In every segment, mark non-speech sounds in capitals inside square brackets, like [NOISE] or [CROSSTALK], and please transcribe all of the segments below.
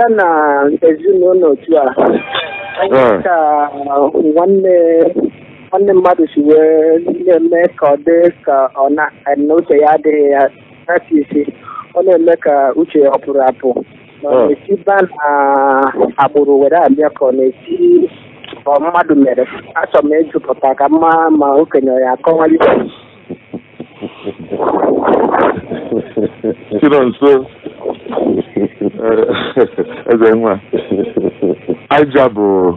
abịa na ezinụlọ otu a ah. ka uh, nwanne nwanne mmadụ si wee na-eme ka ọ dị ka ọ na eh, uche ya adịghị ya aka isi ọ na-eme ka uche ya ah. ọ pụrụ apụ na esi ba na agbụrụ were abịa ka ọ na-esi ọ mmadụ mere achọ m ịjụpụta ka mma ma okenye ya akọwali [LAUGHS] nso eze eh, [LAUGHS] nwa aja bụ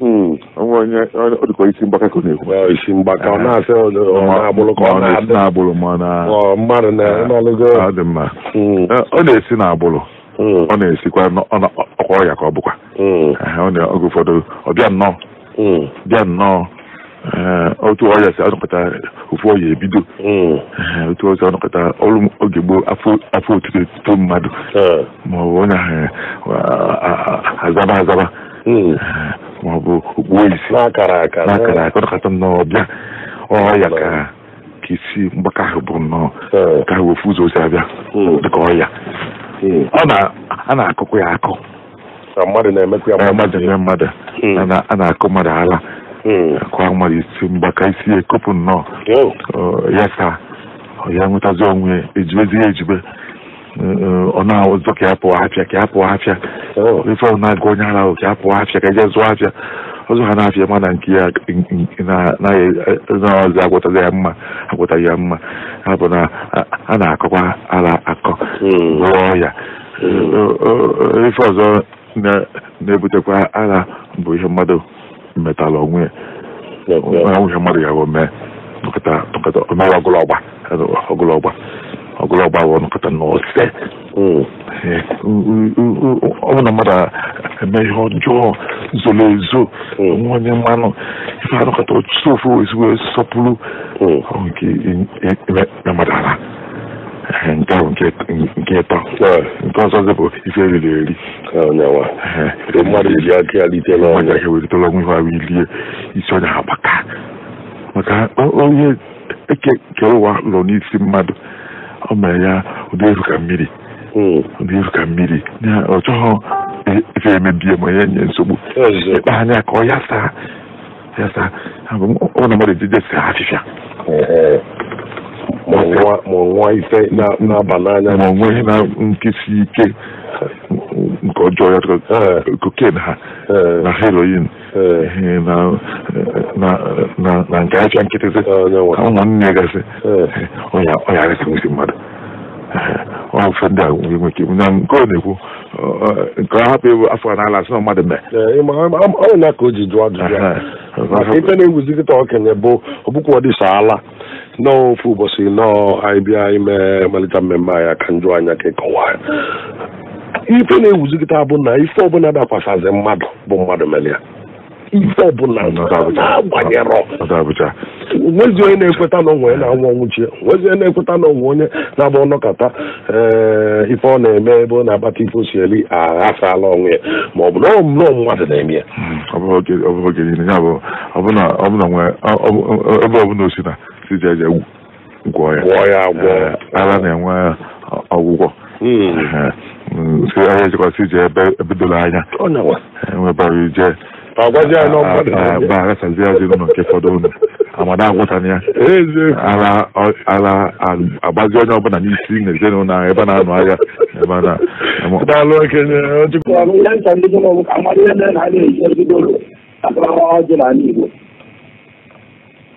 onwe hmm, onye dịkọ isi mgbaka ka ọ na-ekwu isi mgbaka ọ na-asị na-agbụrụ ka ọ na-adị na ma mmadụ na-ọlụgo ah, ọ dị mma hmm. eh, na-esi na-agbụrụ hmm. ọ na-esikwa ọkwa ọrịa ka ọ bụkwa eh, oge ụfọdụ ọ bịa nnọọ bịa nnọọ Eh, otu ọya si anọkọta ofu ọrịa ebido hmm. eh, otu ọrịa si anọkọta ọrụ oge gboo afọ otu tito mmadụ eh. maọbụ onye azaba azaba hmm. maọbụ okpuo isi n'akara aka ọnọkọta nnọọ bịa ọya ka isi mgbakọ ahụ bụ nnọọ ka ahụ ofu ụzọ osi abịa hmm. dịka ọya. a na-akọkwa ya akọ mmadụ na-eme mmadụ a na-akọ mmadụ ala kwamari si mgbaka isi ekopụ nnọọ ya ka ya nwetazi onwe ejibezi ya ejibe ọ na-azọ ka ya pụọ afịa ka ya pụọ afịa ife ọ na-aga onye ara ka ya pụọ afịa ka eje zụọ afịa ọzọ ha na-afịa mana nke ya na-azị agwọtaghị ya mma agwọtaghị ya mma ha bụ na a na-akọkwa ara akọ gwọọ ya ife ọzọ na-ebutekwa ara bụ ihe mmadụ metala onwe ya nwunye mmadụ ya bụ mee nkata omere ọgụlọgba ọgụlọgba ọgụlọgba bụ nkata n'ose ọ bụ na mmadụ eme ihe ọjọọ zoro ezo nwanye mmanụ ife anụkata otu ofu ezigbo sọpụrụ nke mmadụ nke ahụ nke ịtọ nke ọzọ zepụ ife eriri eri mmadụ eji aka ya lite n'ọnya ewelitela ọnwụ ihe ahụ ilie isi ọnya ha gbaka maka onye eke kere ụwa lọ n'isi mmadụ ọ mere ya ụdị eru ka mmiri ụdị eru ka mmiri ọ chọghọ ife emebie ma ya nye nsogbu ịkpa anya ka ọ ya saa ya saa ọ na mmadụ ejijesi afịfịa ma nwa ife na-aba n'anya ma onwe ihe na nkesi ike nke ọjọọ ya koken eh. ha eh. na heroin eh. na nke acha nkịtịsị ụmụnne gasị ọyara kemesi mmadụ ọfe ndị a nwere ike na nke ọ na-ekwu nke ọ hapụ ịbụ afọ n'ala asị na mmadụ mee ọ na-aka o ji jụọ ajụjụ ife na-ewuzi kịta okenye bụ ọbụkwa ọ dịsa ala nọọ ofu ụbọchị nnọọ ịbịa ime mmalite mmemme ya ka njụ anya ka ịkọwa ya ife na-ewuzigịta bụ na ife ọbụla dakwasazị mmadụ bụ mmadụ mere ife ọbụla na na-ekweta na onwe na-anwụ nwezi onye na-ekweta na onwe onye na ọnọkata ife ọ na-eme ebe ọ na-akpata ife osi aghasala ya ma ọ bụ mmadụ na-eme ya ọbụla osi na ji egwu gwọọ ya ara na-enwe ọgwụgwọ ahịa jikọta ebe ebidola anya nwebara ije arasazi ya ezinụlọ nke fọdụ unu amada agwụtana ya ara agbazi onye ọbụla n'isi na ezinụlọ ahụ ebe a na-anụ ahịa ebe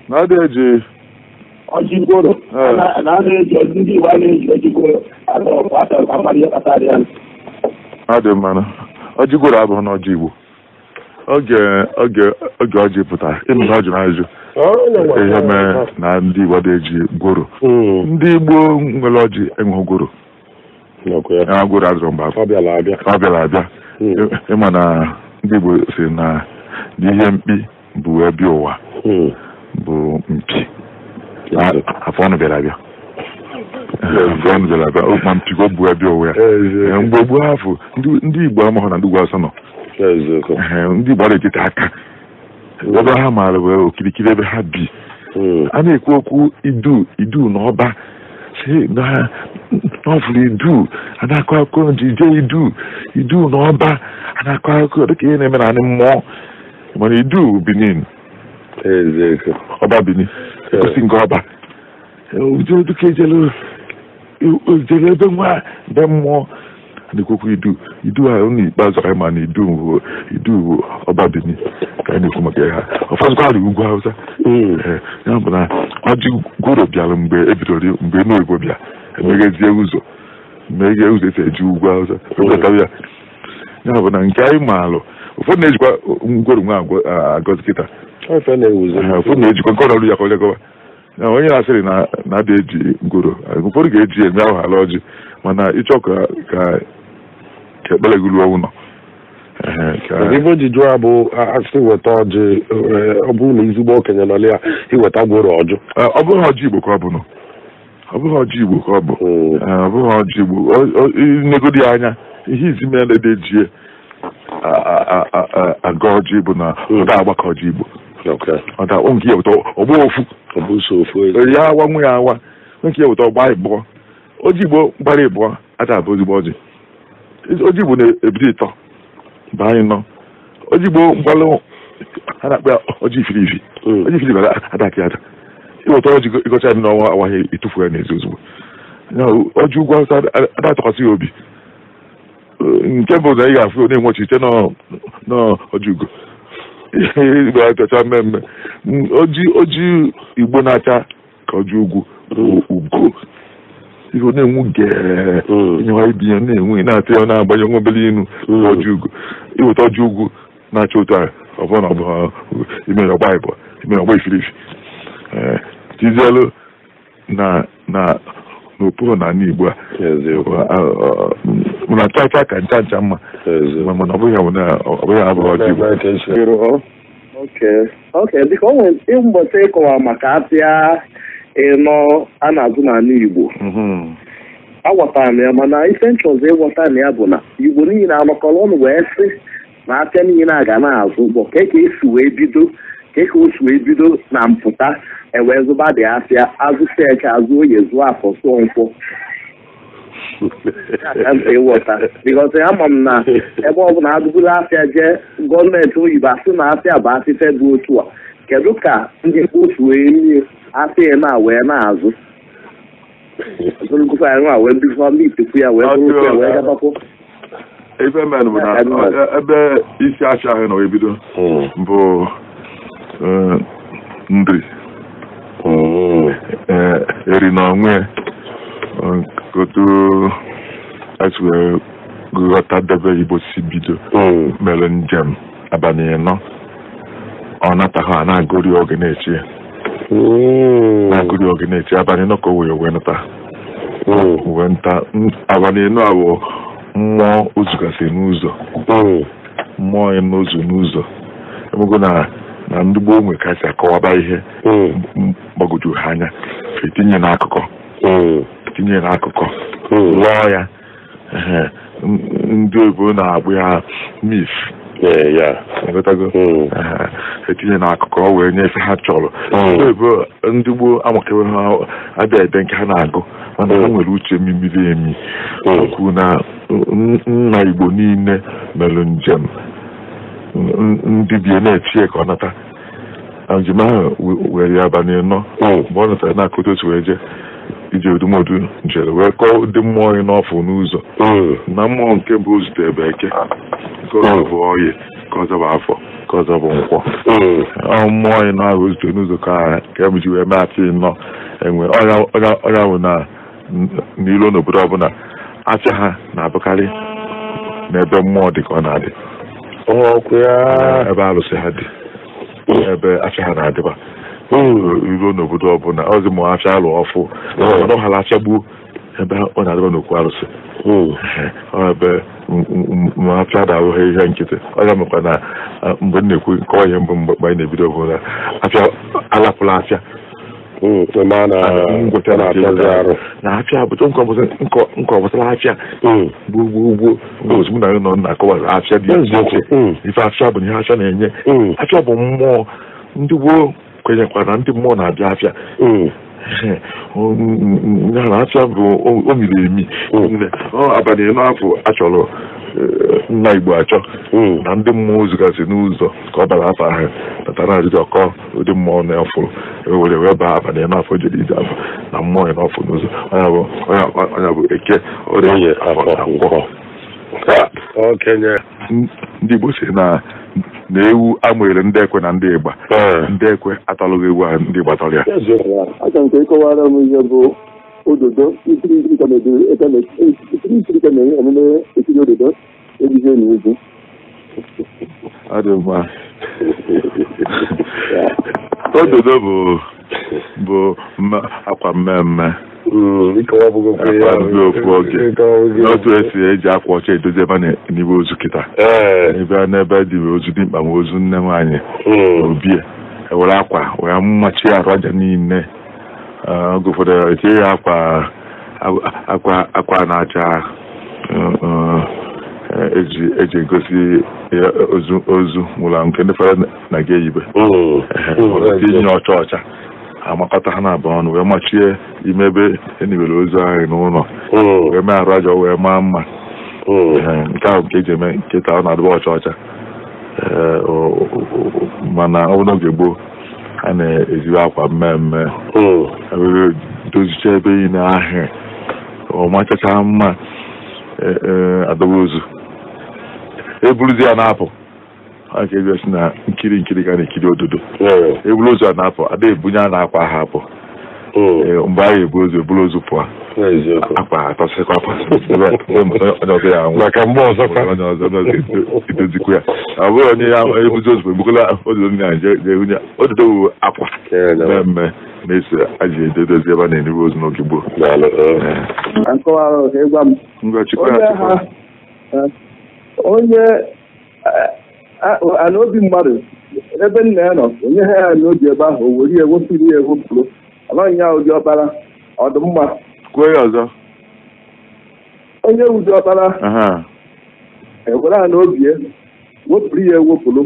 na ọ eji ọjịgoro na a na-eji ndị iwu a na-eji ojigoro ọ dị mmanụ ọjịgoro abụghị na ọjị igbo oge oge oge ọjị pụtara ịnụ na ọ jụrụ ajụ ihe mere na ndị igbo na-eji gworo hmm. ndị igbo nwere ọjị enwe gworo gworo azụrụ mgbe ọ bịara abịa ịma hmm. na ndị igbo si na ihe mkpi bụ ebe ụwa hmm. bụ mpi Ah, afọ bịara abịa bịara abịa oh, ma mpịgo bụ abịa onwe ya mgbe ndị igbo na asọ nọ eh, ndị igbo na aka ebe ha maara okirikiri ebe ha bi hmm. a na-ekwu okwu idu idu na ọba idu a na idu idu ọba a na-akọ akụkọ na-eme na mmụọ idu Benin osi nke ọba oduka ejere ebe nwa be mmụọ na-ekwekwa idu idu ha ụlọ ikpeazụ anyị ma na idu idu ọba bini ka anyị na-ekwu maka ya ha ọfọdụkwarị ugwu hausa ya bụ na ọjị gworo bịara mgbe ebidoro mgbe n'oyibo bịa emeghezie ụzọ meghe ụzọ esi eji ugwu hausa ebetatara ya ya bụ na nke anyị maalụ ụfọdụ na-ejikwa ngworo nwa agọzi kịta na onye asịrị na na-ada eji ngoro ụfọdụ ga-eji eme ahụ ala ọjị mana ịchọ ka ka ekpere gị ruo ụlọ ibe ji jụọ ya bụ asị weta ọjị ọ bụrụ na ezigbo okenye nọ ya iweta gworo ọjụ ọ bụghị ọjị igbo ka ọ bụ nọ. ọ bụghị ọjị igbo ka ọ bụ ọ bụghị ọjị igbo negodi anya ihe izi mere na ede jie aga ọjị bụ na hmm. ọ da agbakọ ọjị igbo maka onke ya ụtọ ọgba ofu ya awa nwa ya awa nwoke ya wụta ọgba ịbụọ oji igbo gbara ịbụọ ata abụ ozigbo ọjị ojigbo na-ebido ịtọ baa anyị nọ oji mgbalụ a na-akpa ya ọjị ifiri ifi ọjị ifiri ifi adakị ada ịwụta ọjị ịgọcha ya n'ọnwa awaghị ịtụfu ya n'ezi ozugbo ọjị ụgwọ awụsa ada atụkwasị ya obi nke bụ na ị ga-afụ na-enwechi ite n'ọjị ugo ga-achacha mmemme mm, oji igbo na-acha ka oji ugwu ugo ihe na-enwu geenyewa mm. ibi ya na-enwe na-atụ ya na-agbanye nwa obere inu mm. oji ugo iweta oji ugwu na-acha otu a ọbụna ọbụla imere ọgba ịbụ imere ọgba ifirifi eh, tizielu na na n'okpuru na ala igbo a na acha acha ka ncha ncha mma mana ọ bụghị ọ bụghị na abụghị ok biko o nwere mbọchị ịkọwa maka apịa ịnọ a na-azụ n'ala Igbo agwatara m ya mana ife nchọzọ ịghọta na ya bụ na Igbo niile anọkọrọ ọnụ wee sị na apịa niile a ga na-azụ ụgbọ ka ka esi wee bido keke ka wee bido na mpụta ewee zụba dị apịa azụ seke azụ onye zụọ afọ sụọ nkwọ ịghọta bikọta ama m na ebe ọ bụla adụburu afịa jee gọọmenti oyibo asị na afịa bụ afịfe bụ otu a kedu ka ndị otu wee nye afịa na wee na-azụ ndị ya wee ife men bụ na ebe isi ahụ ebido bụ eri onwe and goto aswe gota debe ibo bido. melon jam abanye no ọ a na-agụri oge na na na nọ ka o wee wee nta wee nta mmụọ ozugasị n'ụzọ mmụọ n'ụzọ n'ụzọ emego na na ndị gboo nwe kasị akọwaba ihe mgbagwoju ha anya etinye n'akụkọ tinyere akụkọ lụọ hmm. ya ndị oyibo na-agbụ ya mis hmm. etinye na akụkọ wee nye ife ha chọrọ hmm. ndị oyibo ndị gboo amakewe ha abịa ede nke ha na-agụ mana ha nwere uche mmiri emi okwu na nna igbo niile mere njem ndị bie na-etie ka ọ nata njem ahụ were ya abalị nọ mgbe ọ natara na-akụta otu wee iji edumọdụ jere wee kọọ ụdị mmụọ onye n'ọfụ n'ụzọ hmm. na mmụọ nke bụ zute bekee nke ọzọ bụ oyi ka afọ ka ọzọ bụ nkwọ hmm. mmụọ onye na-ahụ zute n'ụzọ ka nke e m ji wee mee achị nnọọ enwe ọrịa bụ na n'ilo n'obodo ọbụla acha ha na-abụkarị n'ebe mmụọ dị ka ọ na-adị ebe arụsị ha dị hmm. ebe acha ha na-adịba iru n'obodo ọbụla ọzi ma ha alụ ọfụ ọ achagbuo ebe ọ na-adịba n'okwu arụsị ebe apịa da ihe nkịtị ọ ya na mgbe m na-ekwu nkọwa ihe mbụ mgbe anyị na-ebido bụ na apịa alapụla apịa na apịa nọ na akọwa dị ife bụ ihe apịa na-enye apịa bụ mmụọ ndị gboo kwenyekwa mm. [LAUGHS] na ndị mmụọ na-abịa afịa nyara afịa bụ o miri emi abalị afọ achọrọ nna igbo achọ na ndị mmụọ zụgasị n'ụzọ ka ọ bara afọ ahụ batara ajụjụ ọkọ ụdị mmụọ na-afụ ewere wee baa abalị afọ jere ije afọ na mmụọ ya n'ọfụ n'ụzọ ọnya bụ eke ọrịa ngwọ ndị igbo si na na ewu amụnyere ndị ekwe na ndị ịgba eh. ndị ekwe atalụghị ewu ahụ ndị gbatara tara ya aka nke ịkọwara m ihe bụ ododo ikiri ikiri ka na-enye omume ekiri ododo ejije na egwu ọ dị mma ododo bụ bụ akwa mmemme hmm, ofu oge n'otu esi eji akwa ọcha edozi ebe n'igbe ozu kịta ebe n'ebe dị ozu dị mkpa ma ozu nne nwaanyị hmm. obie ewere akwa wee mmachi arụ aja niile oge ụfọdụ etinye ya akwa akwa na-acha eji egosi ozu ozu nwụrụ nke ndị fara na ga eyibe inye ọcha ọcha amakọta ha na-abụ ọnụ wee machie ime ebe enibere ozu ahụ n'ụlọ wee mee arụ aja wee maa mma nke ahụ nke eji eme nketa ọ na-adịba ọcha ọcha mana ọ n'oge gboo a na-ejiwe akwa mmemme dozicha ebe niile ahụ ọ machacha mma e, e, adọba ozu Ebuluzi ya na-apụ a ga-egosi na nkiri nkiri ka na-ekiri ododo Ebuluzi ozu na-apụ ada ebunye a na-akwa ha apụ hmm. mgbe anyị eburu ozu pụọ akwa ha atọsịkwa onye ọzọ ya maka mgbe ọzọkwa onye ọzọ ya ọ bụrụ onye ya ebuzi ozu ebukola ododo ndị Naịjirịa ododo wu akwa mmemme na-eso aji edodozi ebe a na-eribe ozu n'oge gboo eh. onye eh, eh, anaobi mmadụ ebe nna ya nọ onye ha ya n'obi ebe ahụ o were ewepụrụ ya ewepụrụ amaghị ya ụdị ọkpara ọdụmma kwuo ya ọzọ onye ụdị ọkpara ewere ha n'obi ya wepụrụ ya ewepụrụ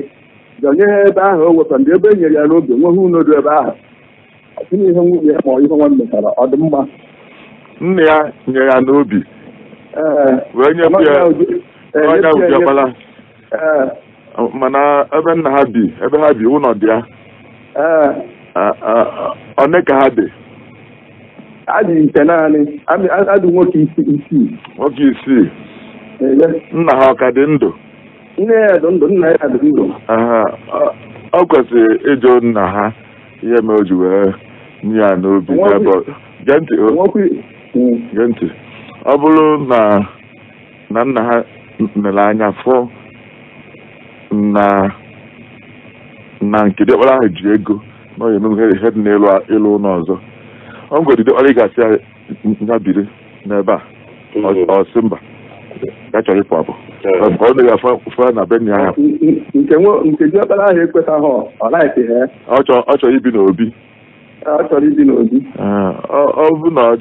onye ha ebe ahụ o wepụrụ ndị ebe e ya n'obi nweghị unodo ebe ahụ ọtụnụ ihe nwunye ya ma ọ ihe nwanne tara ọdụmma nna ya nyere ya n'obi eh, wee nyepụ ya Eh, onye ujiọkpala eh. oh, mana ebe nna ha bi ebe ha bi ụlọ dị ya one ka ha dị adị nke naanị adị nwoke isii nwoke isii eh, nna ha ọ ka dị ndụ nne ya dị ndụ nna ya dị ndụ ọ kwesịrị ịjụ nna ha ihe mere o ji wee nye ya n'obi gee ntị ọ bụrụ na na nna ha nlereanya fụ na na nke diọkpara ahụ ji ego na ihe dị n'elu ịlụ ụlọ ọzọ ọ ngwa diọkpara ị ya n'ebe a ọsị mm-hmm. mba ya chọrọ ịpụ apụ ka ọ na afọ afọ na be ya ah, nke ahụ ọ naghị ọ chọrọ ibi n'obi ah, ọ chọrọ ọ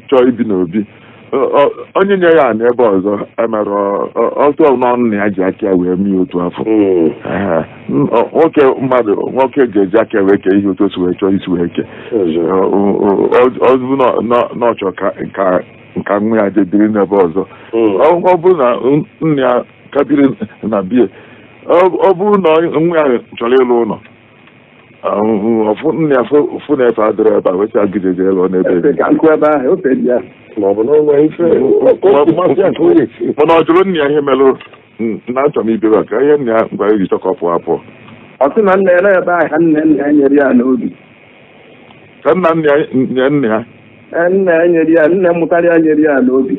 chọọ ibi n'obi ah, onye nye ya n'ebe ọzọ emere ọtụ n'ọnụ na ya ji aka wee mee otu afọ nwoke mmadụ nwoke ga-eji aka wee kee ihe otu si wee chọọ isi wee kee ọzụ n'ọchọ ka nwa ya jediri n'ebe ọzọ ọ bụrụ na nna ya kabiri na bie ọ bụrụ na nwa ya chọrọ ịlụ ụlọ ọfụ nna ya fụ na efe adịrọ ebe a wee sị agide elu n'ebe ma ọ bụ n'ọnwa ife mana ọ jụrụ nna ya ihe merụ na achọ m ibebe ka ihe nna ya ngwa iji chọkọ pụọ apụọ ọ sị na nna ya na-ebe aha nna nna ya nyere ya n'obi ka nna nna ya nye nna ya nna ya nyere ya nna mụtara ya nyere ya n'obi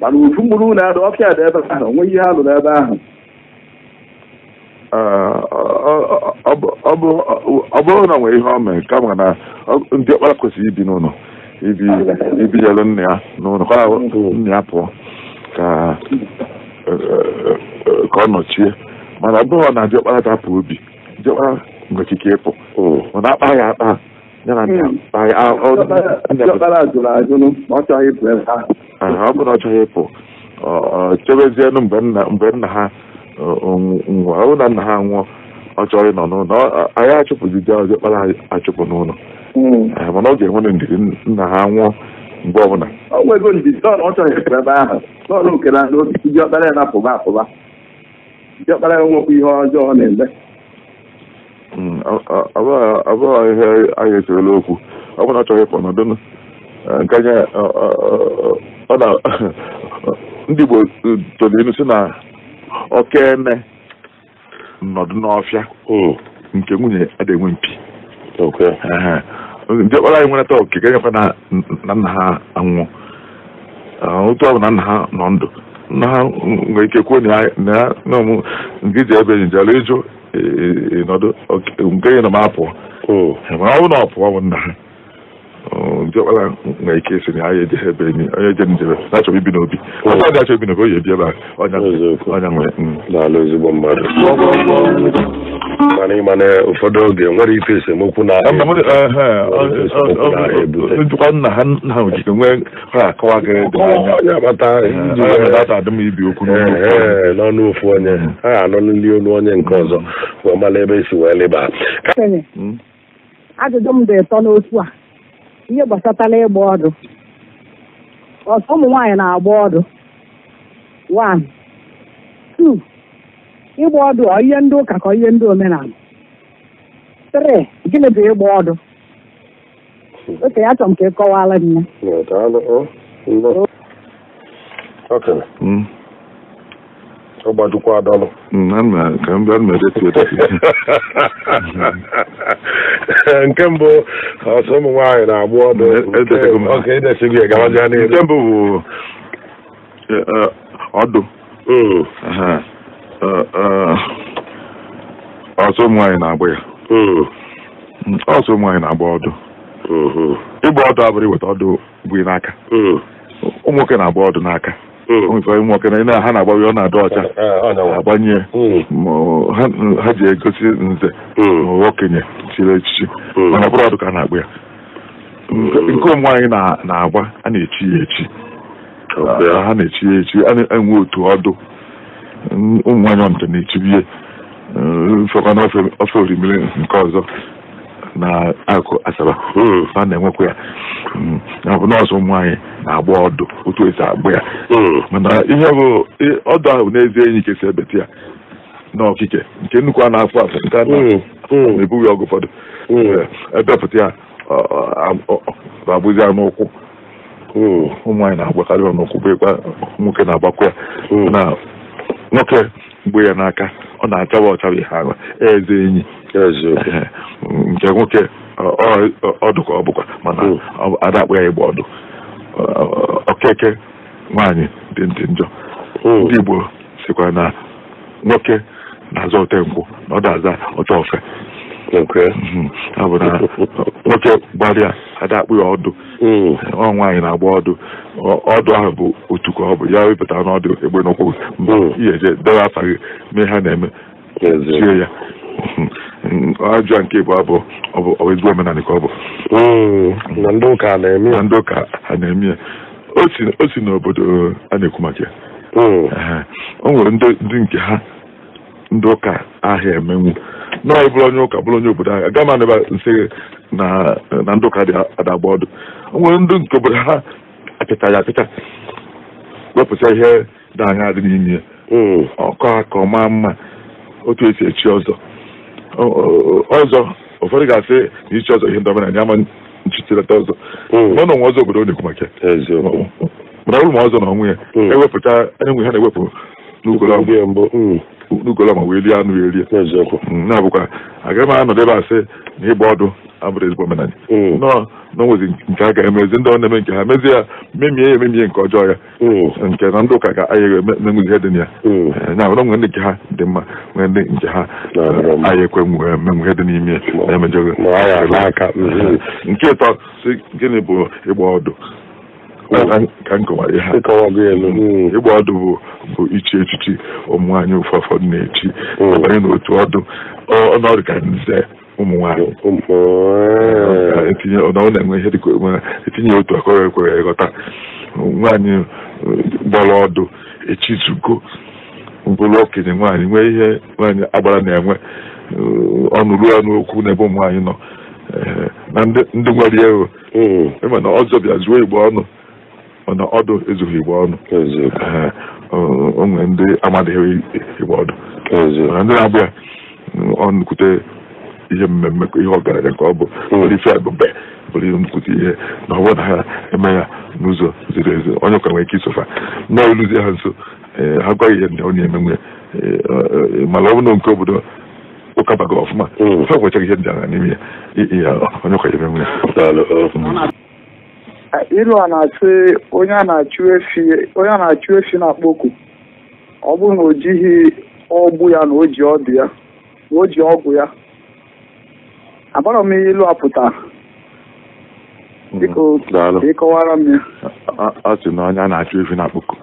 mana ufu mkpụrụ na-adụ ọfịa dị ebe ahụ onwe ihe ha lụrụ ebe ahụ ọ bụrụ na nwere ihe ọ mee kama na ndị ọkpara kwesịrị ibi n'ụlọ Ibi. Ibi. ibinyelụ nna ya n'ụlọ ka nna ya pụọ ka ọ nọchie mana ọ na diọkpara dapụ obi diọkpara nwere ikike ịpụ mana akpa ya akpa ya na ọ bụrụ na ọ chọghị ịpụ chebezienụ mgbe nna ha nwụọ ọ bụrụ na nna ha nwụọ ọ chọrọ ịnọ n'ụlọ anyị achụpụzi diọkpara achụpụ n'ụlọ Hmm. mana ọ ga-enwere ndidi nna ha nwụọ mgbe ọbụla ọ nwego ndidi ọ chọghị ekwu ebe ahụ n'ọrụ nke na n'osisi ọkpara ya na-apụba apụba ọkpara ya nwekwa ihe ọjọọ na-eme abụghị hmm, ihe anyị echerela okwu ọ bụrụ na achọghị ịpụ nọdụ eh, nke anya ọ na [LAUGHS] ndị Igbo eh, toro elu si na okene nọdụ n'ọfịa hmm. nke nwunye adịghị enwe mpi Okay. Ndị ọkpara anyị nwere taa ga nyekwa na nna ha anwụọ otu ọ na nna ha nọ ndụ nna ha nwere ike kwuo na ọmụ nke iji ebe njelu ịjụ ịnọdụ nke ya na m apụọ ọ bụ na ọ pụọ bụ nna ha diọkpara na ike isi na anya ebe enyi onye je njem mm. na ibi n'obi achọ ibi n'obi oyi ebi ebe a ọnya nwere ezigbo mmadụ mana na ụfọdụ oge nwere ife esemokwu na njikwa nna ha nna ojike nwee ha akọwa gị n'ọnụ ofu onye ha anọ n'ili olu onye nke ọzọ mm. wee mara ebe esi wee leba mm. ajụjụ m dị ụtọ n'otu a ihe gbasatala ịgba ọdụ ọsọ ụmụ nwaanyị na-agba ọdụ one two ịgba ọdụ ọ ihe ndị ụka ka ihe ndị omenala three gịnị bụ ịgba ọdụ oke ya chọrọ m ka ị kọwara m ya ọ gbajukwa adọlụ nke mbụ ọsọ ụmụ nwaanyị na-agbụ ọdụ nke mbụ bụ e, e, ọdụ hmm. e, ọsọ ụmụ nwaanyị na-agbụ ya hmm. ọsọ ụmụ nwaanyị na-agba ọdụ hmm. ịgba ọdụ abụrụ iweta ọdụ bụ n'aka ụmụ nwoke na-agba ọdụ n'aka maka na ị na-aha na-agbawe ọ na-adọ ọcha agbanye ha ji egosi nze okenye chiri echichi mana ọ ọdụ ka a na-agba ya nke ụmụ anyị na-agba a na-echi ya echi ha na-echi ya echi a na-enwe otu ọdụ ụmụ nwaanyị na-echibie fọkana ofe orimiri nke ọzọ na akụ asaba hmm. a na-enwekwa ya na hmm. bụ nọọsụ ụmụ na-agba ọdụ otu esi agba ya hmm. mana ihe bụ ọdụ ahụ n'ezie enyi kesi ebete ya n'ọkike nke nnukwu a na-afụ afụ nke na-ebughị hmm. hmm. ọgụ ụfọdụ ebepụta ya abụzi ya n'ụkwụ ụmụ nwaanyị na-agbakarị ya n'ụkwụ bụkwa nwoke na-agbakwa ya na nwoke mgbe ya n'aka ọ na-achawa ọchawa ihe ahụ eze enyi nke nwoke ọdụ ka ọ bụkwa mana ada akpụ ya ịgba ọdụ okeke nwaanyị dị ndị njọ hmm. ndị Igbo sikwa na nwoke na-aza otenkwụ na ọ da-aza oteofe abụ mhm. na [LAUGHS] nwoke gbalịa ada akpụ ya ọdụ hmm. ọ nwaanyị na-agba ọdụ ọdụ ahụ bụ otu ka ọ bụ ya wepụta n'ọdụ egbe n'ụkwụ mba hmm. ihe eje debe gị mee ha na-eme tie ya [LAUGHS] ajọ nke bụ abụ ọ ezigbo omenala ka ọ bụ hmm, na ndị ụka a na-eme ya o si n'obodo a na-ekwu maka ya hmm. o nwere ndị nke ha ndị ụka ahịa emenwu nọọ bụrụ onye ụka bụrụ onye obodo ahịa aga m anaba nsị na ndị ụka dị adagba ọdụ o nwere ndị nke obodo ha apịta ya apịta wepụta ihe dị anya dị n'ime ya hmm. ọkọ ka ọ maa mma otu esi echi ọzọ ọzọ ụfọdụ ga-asị na ichi ọzọ ihe ndọba na ama nchichilata ọzọ mana ọnwa ọzọ obodo na-ekwu maka mana ụlụ ma ọzọ na ọnwụ ya ewepụta enwe ha na-ewepụ n'ugolọma wee lie anụ ya erie na-abụkwa agaghị m anọdebe asị na ịgba ọdụ abụrụ ezigbo omenala hmm. nọọ na nke a ga-emezi ndị ọ na-eme nke ha mezie ya memie ya ememie nke ọjọọ ya hmm. nke na ndị ụka ga-ayaghị menwezi ihe dị na ya hmm. eh, na nwere nwere nke ha dị mma nwere ndị nke ha aya ekwe menwe ihe dị n'ime ya na-emejọghị eh, nke ịtọ si gịnị bụ ịgba ọdụ ka nkọwara ihe ịgba ọdụ bụ bụ ichi echichi ụmụ anyị ụfọdụ na-echi abanye n'otu ọdụ ọnọdụ ka nze ụmụ nwaanyị na e na-enwe ihe dịka etinye e otu akọrọ ekwere ịghọta nwanyị gbọrọ ọdụ echizugo bụrụ okenye nwaanyị nwee ihe nwaanyị agbara na-enwe ọnụ ruo ọnụ okwu n'ebe ụmụ nwanyị nọ na ndị nwere ego ịma hmm. e na ọzọ bịa zuo igbo ọnụ mana ọdụ ezughị igbo ọnụ onwe ndị amadịghị igbo ọdụ ndị na-abịa ọnụkwute ihe mmemme ihe ọgaranya ka ọ bụ nnukwu ihe na ọ bụrụ eh, na eh, eh, mm. ha eme ya n'ụzọ ziri ezi onye ụka nwere ike isofa na oluzie ha nso ha gwaghị ihe ndị ọ na-eme nwe mana ọ bụrụ na nke obodo ụka baga ọfụma ha gwachaghị ihe ndị agha n'ime ya onye ụka ya eme nwe ya ilu a na-asị onye a na-achụ efi na-akpọ oku ọ bụrụ na o jighị ọgbụ ya na o ji ọdụ ya na o ji ọgwụ ya akpọrọ m ihe ilu apụta biko ka ịkọwara m ya a sị na ọnya na-achụ ife na akpụkọ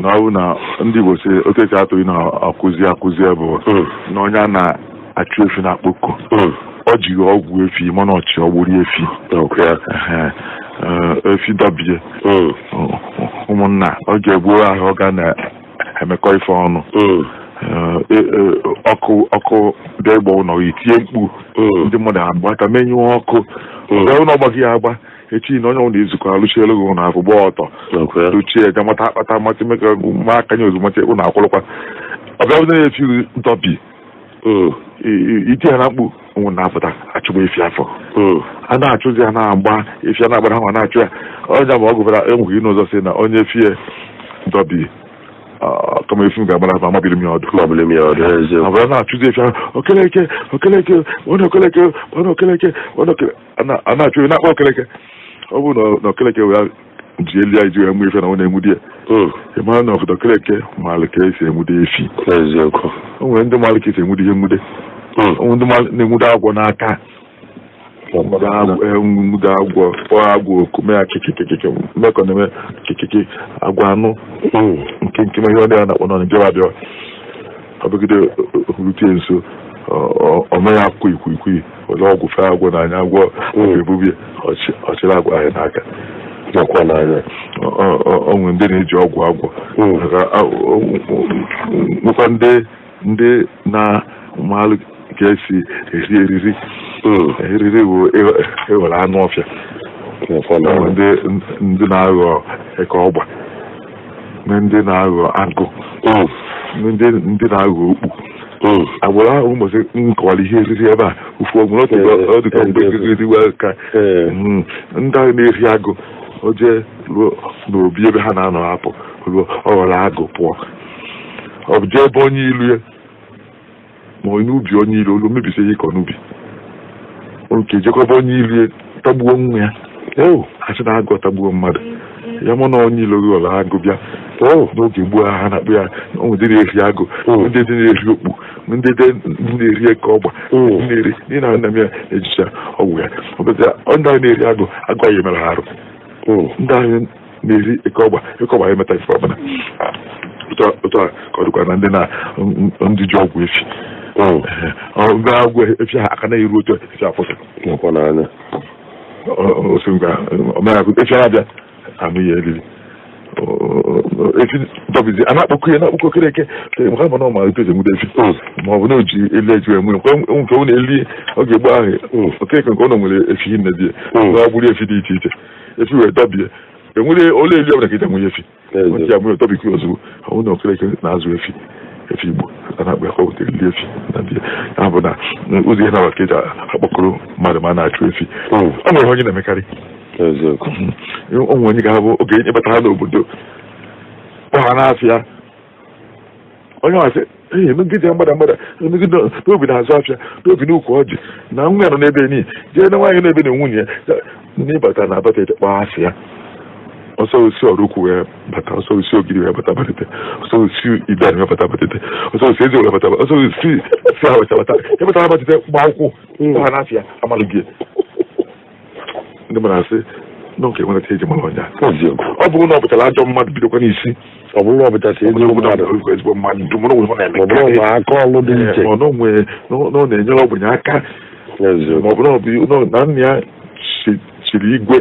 na na ndị Igbo si oke si atụghị na akụzi akụzi bụ na ọnya na-achụ efi na akpụkọ ọ mm. jiri mm. ọgwụ efi mana ọchị ọgbụrụ efi efi dọbie mm. ụmụnna ọ ga-egbuo ahụ ọ ga na-emekọ ife ọnụ E, ọkụ ọkụ bịa ịgba ụlọ itinye mkpu ndị mmadụ agba aka menyụọ ọkụ Ọbịa ụlọ ọgbaghị ya agba echi na onye ọbụla ezukọ alụchielu gị ụlọ afọ gbaa ọtọ lụchie ga mata akpata mmasị ma aka nye ozugbo ụlọ akwụlụkwa ọbịa na-efighị ntọpi iti ha na mkpu nwụ na-apụta achụgba efi afọ a na-achụzi ha na-agba efi a na-agbara ha ma na-achụ ya onye ma ọ gụbara ihe n'ụzọ si na onye fie ntọbi. kamaefum ga-agbara aba amabiri m ya ọdụ abara na-achụzi ọdụ. okeleke okeleke onye okeleke onye okeleke a na-achụ onye na-akpa okeleke ọ bụrụ na okeleke wee ji elu ya iji wee mụ ife na ọ na-enwu di ya na obodo ndị agwọ n'aka nwudo agwọ kpọọ agwa oku mee akịkịkịkịkị mmekọ na-eme kịkịkị agwa anụ nke nke ihe ọ dị a na-akpọ na Naịjirịa abịa ọbụgide rute nso ọmee akwụkwọ ikwikwii were ọgwụ fee agwọ na anya agwọ ebube ọchịrị agwọ ahịa n'aka nakwa O onwe ndị na-eji ọgwụ agwọ nwekwa ndị na maalụ ka esi eri eriri oh. eriri bụ ewere anụ ọfịa ndị na-aghọ eke ọgba ndị na-aghọ agụ oh. ndị na-aghọ okpu oh. agbụrụ ahụ ụmụsị nkọwara ihe eriri ebe a ofu ọdịka mgbe eh, eh, eh. ka hmm. ndị ahụ na-eri agụ oje ruo n'obi ebe ha na-anọ hapụ ruo ọ ghọrọ agụ pụọ ọ jee ebe onye ilu ya ma onye ubi onye ilu olu mebisi ihe ịkọ n'ubi oke jekọba onye ilu tagbuo nwa ya eo achị na-agụ tagbuo mmadụ ya mụ na onye ilu gị ọla agụ bịa o n'oge gboo ha na-akpụ ya dị na-eri agụ ndị na-eri okpu ndị na-eri eke ọgba na-eri na nna m ya ejicha ọgwụ ya ndị ahụ na-eri agụ agụ anyị mere ha arụ ndị ahụ na-eri eke ọgba eke ọgba ya emeta ife otu a ka ọ dịkwa na ndị na ndị ji ọgwụ efi ọ efia akana efi ocho efia fosa nakwana anya o efi a na-akpọkọ ya na-akpọkọ kere eke ma na ọma efi ma ọ bụ na oji ele eju wee nke nke ọ na ọ ga-egbu ahụ oke nke ọ nwere efi nne di ya gburu efi dị iche iche efi wee dọbie enwere ole eli ọbụla ka enwe efi ya ozugbo ọ bụ na okere eke azụ efi efi igbo a na-akpa efi na ndị ya bụ na ụzọ ihe na-abụ ka eji akpọkọrọ mmadụ ma a na-achụ efi ọ nwere onye na-emekarị onwe onye ga-abụ oge nye batara n'obodo ọha n'afịa onye ọsị ee emegide mgbada mgbada emegide n'obi na-azụ afịa n'obi n'ukwu ọjị na nwa ya nọ n'ebe niile jee na nwaanyị n'ebe na nwunye ya n'ịbata na abata kpaa asị ya ọsọ osi ọrụkwu wee bata ọsọ osi ogiri wee bata batete ọsọ osi idan wee bata batete ọsọ osi ọrụ wee bata ọsọ osi si ha bata ya batara batete gba akwụkwụ ha ndị mara asị nọ nke ọnya ọ bụrụ na ọ ajọ mmadụ bidokwa n'isi ọ na ọ mmadụ ezigbo mmadụ nwere aka iche enyere aka ya chiri igwe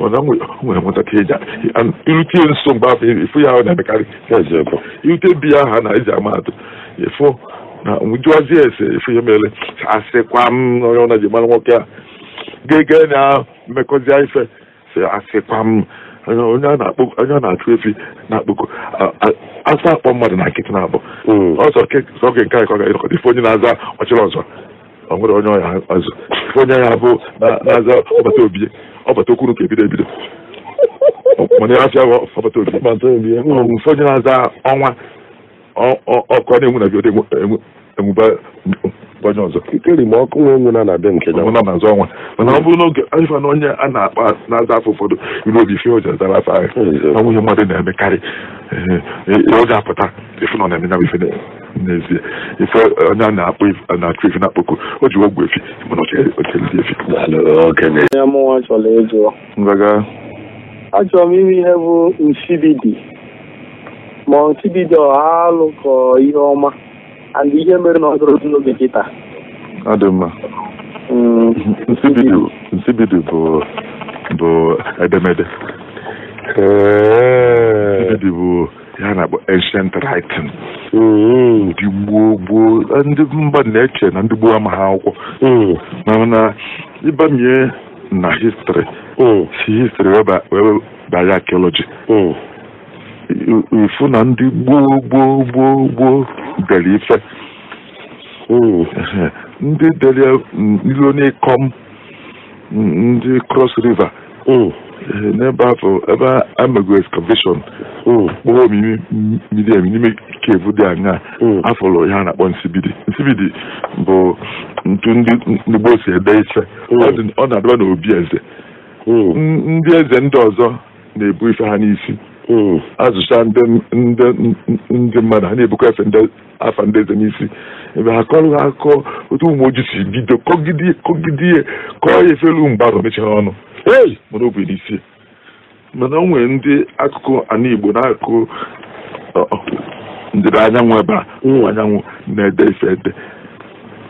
mana nwere nwatakịrị irute nso mgbe afọ ya ọ na-emekarị irute bi ya ha na-eji ama atụ efu na jụazie ese ifu ya mere asịkwa m onye ọna ji nwoke a gege na mmekọzi ife si asịkwa m onye a na-achụ efi na-akpụkọ asa akpọ mmadụ na nkịtị na abụ onye na-aza ọchịrị ọzọ nwere onye ọya azụ onye ya bụ na-aza ọbata obi ọbata okwuru ka ebido ebido mana ya afịa ọbata obi mfe onye na-aza ọnwa ọkụ a na-enwu na bido enwuba ọzọ kere ma ọkụ nwe onwe na na be nke ya mana ọ bụrụ n'oge ifa na onye a na-akpa na-aza afọ ụfọdụ iru obi ife oji azara afa ahụ na nwunye mmadụ na-emekarị e, ọ ga-apụta ife nọ na-eme ife n'ezie ife onye a na-akpọ na-achụ ife na-akpọkụ o ji ogwe efi mana ochelidi efi achọrọ m ime ihe bụ nsibidi ma nsibidi ọha alụ ka ihe ọma and ihe mere na ọ gụrụ n'oge kịta ọ dị mma nsibidu nsibidu bụ bụ edemede nsibidu bụ ya na-akpọ ancient writing ndị gboo gboo ndị mba na-eche na ndị gboo amaghị akwụkwọ mana ịbanye na histri si histri wee banye archaeology ifu na ndị gboo gboo gboo gboo dere ife oh, ndị dere ilonikom ndị cross river oh, n'ebe afọ ebe amego excavation kpọrọ oh, omimi mmiri emi n'ime kevu dị anya afọrọ ya na-akpọ nsibidi nsibidi bụ ntu ndị gboo si ede ife ọ na-adaba n'obi eze ndị eze ndị ọzọ na-ebu ife ha n'isi Mm. azụcha ndị mmadụ ha na-ebukwa efe afa ndị eze n'isi ebe ha kọrọ ha akụkọ otu ụmụ ojii si bido kọgide ihe kọọ ya efelu mgbarụ mechara ọnụ mana o bụ n'isi mana o nwere ndị akụkụ ana Igbo na-akụ ndịda anyanwụ ebe a mm. anyanwụ na-ede ife ede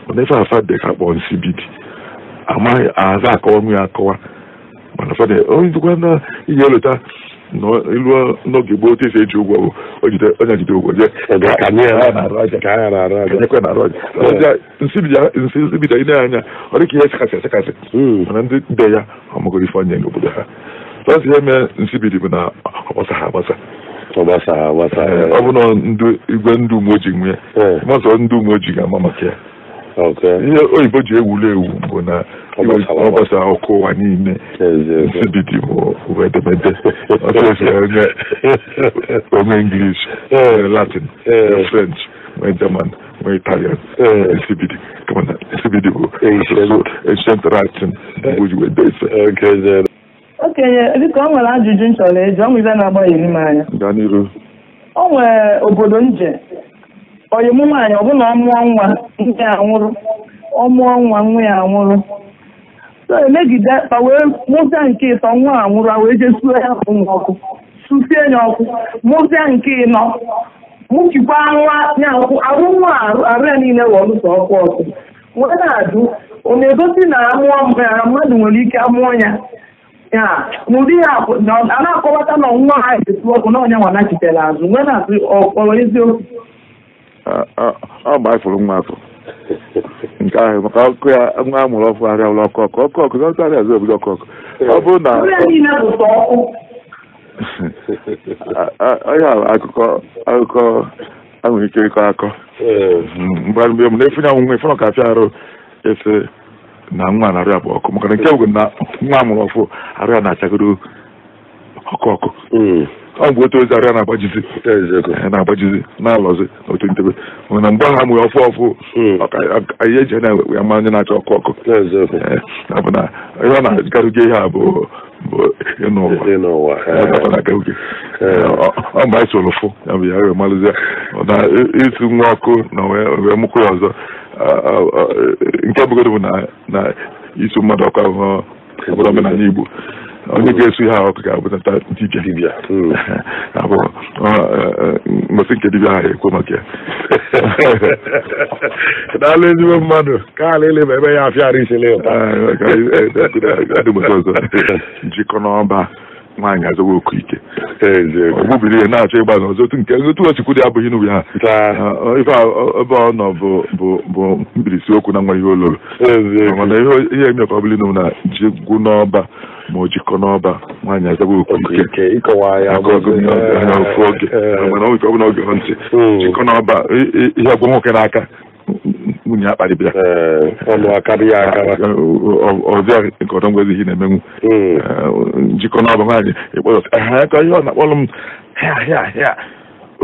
mana ife afa dị ka akpọ nsi bibi amaghị aza akọwa nwe ya akọwa mana fada onye dịkwa na ihe leta ilu n'oge gboo otu esi eji ụgwọ bụ onye jide ụgwọ jee nsi bido ile anya ọ dị ka ihe sekasị sekasị mana ndị be ya ọmụgoro ife onye n'obodo ha tọzi ihe mee nsi bụ na ọgbasa ha agbasa ọ bụ na igwe ndị umeojii nwee mazọ ndị umeojii ga-ama maka ya ihe oyibo ji ewulu ewu bụ na ọgbasa ọkụ ụwa niile nsibidi bụ edemede ọsịsịenye onwe English Latin eh. French nwee German nwee Italian nsibidi kama nsibidi bụ asụsụ ancient iwe ise. okenye biko ọ nwere ajụjụ nchọrọ chọrọ eji ọnwụ ibe na-agbaghịrị m anya o nwere obodo nje oyimụ nwaanyị ọbụna ọ mụọ nwa nne ya anwụrụ ọ mụọ nwa nwa ya anwụrụ so emegide fa wee mụsịa nke ịtọ nwa a nwụrụ wee jesuo ya ọkụ susie ya ọkụ mụsịa nke ịnọ mụchikwa nwa ya ọkụ arụ nwa arụ ya niile wee ọkụ ọkụ wee na-ajụ ọ na-egosi na amụọ mmadụ nwere ike amụọ ya ya n'ụdị ya a na-akọwata na nwa ha esu ọkụ na ọnya azụ na ọ nke ahụ maka ọkụ ya nwa a mụrụ ọfụ arịa ụlọ ọkụ ọkọkọ na ọtara azụ ọkụ ọkụ. ọ bụrụ na onye akụkọ akụkọ anwere ike ịkọ akọ mgbe mgbe m na-efunye anwụnwe fọrọ ka afịa arụ ese na nwa na-arịa bụ ọkụ maka na nke bụ na nwa a mụrụ ọfụ arịa na-achagoro ọkụ ọkụ hmm. ọ bụ otu ozi arịa na-agbajizi na-agbajizi na-alọzi n'otu ntebe na mgbe ha mụrụ ọfụ ọfụ ihe eji na-ewe ya na-achọ ọkụ ọkụ bụ na ihe ọ na-agarụje ihe a bụ n'ụwa ọ mgbe anyị soro fụ ya bụ ya rịọ malụzie na isi nwa ọkụ na wee mụkwụ ya ọzọ nke bụgodo bụ na isi mmadụ ọkụ ahụhụ obodo omenala Igbo onye ga esu ha ọkụ ga-abụta ndị ije dibịa abụọ mmasị nke dibịa ha ekwe maka ya daalụ ezigbo mmadụ ka ala uh, eleba ebe ya afịara isele ọzọ njikọ n'ọba nwaanyị azọwa oku ike ogbubiri ihe na-achọ ịgba n'ọzọ nke otu ochukwu dị abụghị n'ubi ha ife uh, ebe ọ nọ bụ mkpirisi okwu na nwa ihe oloro eh, mana ihe emekọ bụli na ji gwụ n'ọba ma ọ jikọ n'ọba nwaanyị azaba okwuike ike ofu oge mana eh, bụ na oge hụ ntị hmm. jikọ n'ọba ihe ọgwụ nwoke n'aka nwunye ya kparịbịa eh, ọzọ ah, eh, nke ọdọ ngwezi ihe na-emenwu njikọ hmm. n'ọba nwaanyị ịkpọrọ ha aka ihe ọ oh, na m o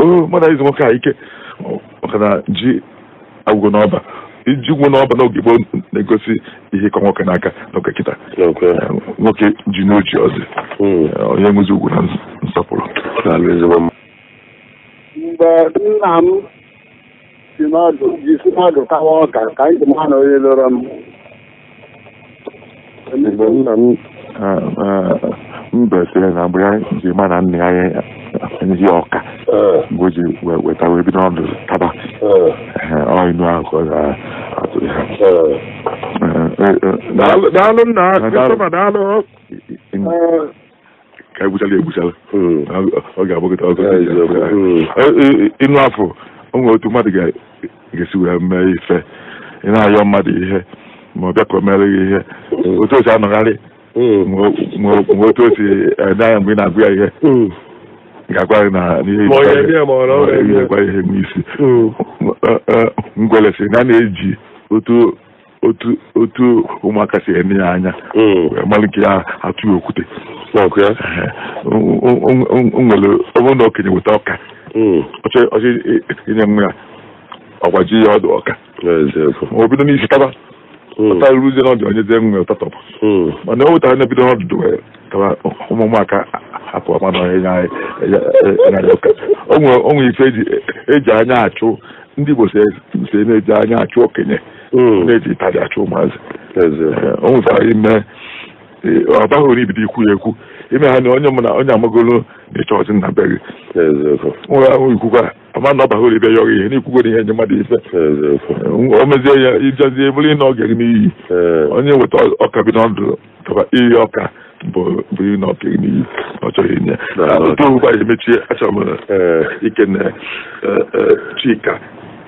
nwoke ike ọkana ji agwụgo n'ọba iji ụgwọ n'ọba n'oge gboo na-egosi ihe ịkọ nwoke n'aka n'oge kịta nwoke ji n'oji ọzọ hmm. onye nwezi ugwu na nsọpụrụ mgbe nna m si mmadụ kawa ọka ka anyị ji na onye lụrụ m mbe sịrị na mgbe anyị ji na nna ya ezi ọka mgbe eh. o ji weta wee bido ọdụ taba ọinu eh. eh, ahụ ka ọ ga-atụ ha daalụ nna Christopher daalụ ka egbuchala egbuchala ọ ga-agbagota ọzọ ịnụ afọ o nwere otu mmadụ ga-esi wee mee ife ị na-ayọ mmadụ ihe ma ọ bịa ka o mere gị ihe hmm. otu o anọgharị hmm. ma otu osi si mgbe ị na-agụ ya ihe hmm. ga-agwa na gwa ihe n'isi ngwele si na na-eji otu otu otu ụmụaka si enye ya anya mm. malụ nke ya atụ okwute nwere ọbụrụ na okenye weta ọka mm. ọchị inye nwa ya ọgbaji ya ọdụ ọka o bido n'isi taba mm. ọta ruzie n'ọdụ onye zie nwa ya ụtatọ mana o wetara na bido n'ọdụdụ ụmụaka hapụ onwe ife eji anya achụ ndị Igbo si na-eji anya achụ okenye hmm. na-eji ịtaji achụ ụmụazị o nwezara eh, ime eh, ọ baghị onye ibido ikwu ya ekwu ime ha na onye mụ na onye amagolo na-eche ọzi nna be gị nwe ahụ ikwukwa ama na ọ baghị ibe ya ọghị ihe n'ikwugoro ihe nye mmadụ ife eh, o mezie ya ijezi bụrụ ị na ọ ga n'iyi onye weta ọka bi n'ọdụ tọba iyi ọka 冇冇用攞俾你，我做嘢㗎。不過我反而咪知阿叔咪誒一個咧誒誒專家。